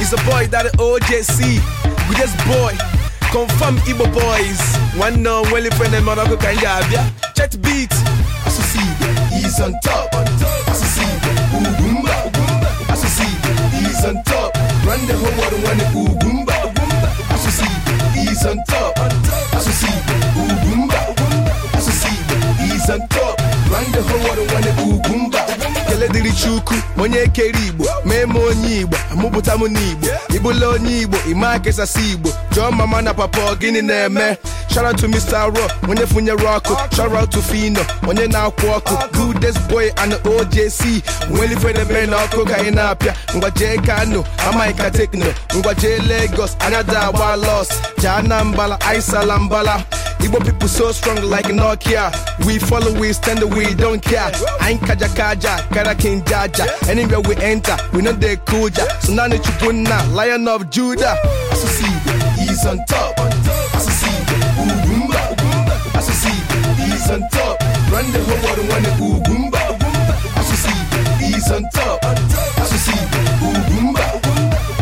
He's a boy that OJC. We just boy. Confirm Igbo boys. One no well friend and Morocco can ya Chet beat. Associate. He's on top. Associate. Ugumba. Associate. He's on top. Run the whole world one Ugumba. Associate. He's on top. Associate. Ugumba. Associate. He's on top. Run the whole world one Ugumba. chukwu onye kere igbo mee m onye igbo amụpụta m n'igbo ịbụla onye igbo ịma kesasị igbo jụọ mama na papa gịnị na-eme shout out to Mr. Raw onye funyere ọkụ shout out to Fino onye na-akwụ ọkụ gudes boy and OJC nwere ifedebe na ọkụ ka anyị na-apịa ngwajee Kano amaghịka tekno ngwajee Lagos anya agba los jaa na mbala aisala mbala Igbo people so strong like Nokia. We follow, we stand, we don't care. I ain't kaja kaja, kara king jaja. Anywhere we enter, we know they cool ja. So now need you lion of Judah. Associate, he's on top. Associate, Ugumba. Associate, he's on top. Run the whole world, one Ugumba. Associate, he's on top. Associate, Ugumba.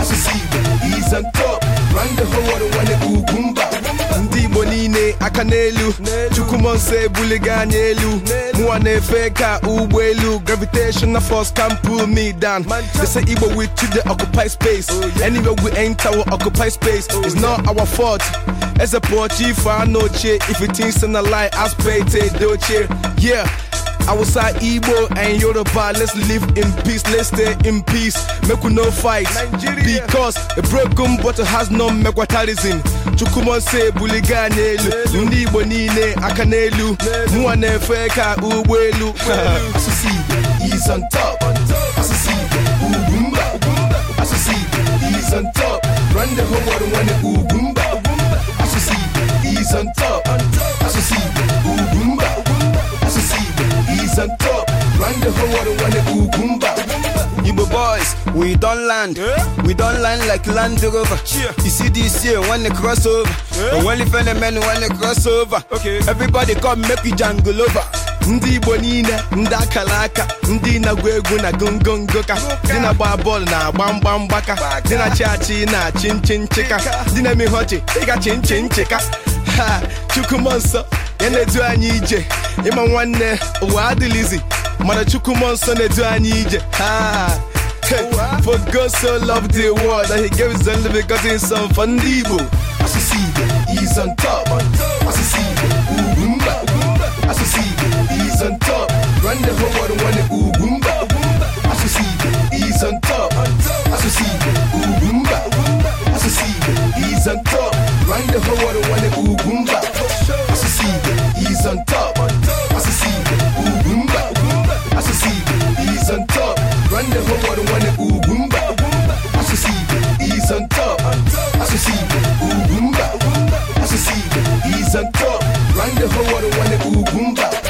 Associate, he's on top. Run the whole world, one Ugumba. niile aka n'elu chukwumo nso ebuliga anya elu mụwa na-efe ka ụgbọelu gravitational force can pull me down they say igbo we to dey occupy space anywhere we enter we occupy space is not our fault eze pụọ chi ife anụ ochie if it say na lie aspirate dị ochie yeah Awusa, Igbo, and Yoruba, let's live in peace, let's stay in peace. Make we no fight. Nigeria. Because a broken bottle has no megwatalism. Chukuma say buliga n'elu ndị Igbo niile aka n'elu mụwa na-efe ka ụgbọelu succeed is on top round the whole world wanna cucumber. Igbo boys, we don't land, yeah. we don't land like Land Rover. Yeah. You see this here when they cross over, yeah. only phenomen when they cross over. Okay. Everybody come make you jangle over. ndị igbo niile ndị akara aka ndị na egwu na gongongo ka dị na-agba bọọlụ na-agba mgba mgbaka dị na chi na-achị nchi nchịka dị na-emeghe ọchị ịgachi nchi nchịka ha chukwuma nsọ ya na-edu anyị ije ịma nwanne ụwa adịlizi mana chukwu mmụọ nsọ na-edu anyị ije ha for God so loved the world that he gave his only begotten son for ndị Igbo asụsụ Igbo is on top asụsụ Igbo ugwu mba asụsụ Igbo is on top run the whole world nwanne ugwu mba asụsụ Igbo is on top asụsụ Igbo ugwu mba asụsụ Igbo is on top run the whole world nwanne ugwu mba Around the whole world, wanna boom bap.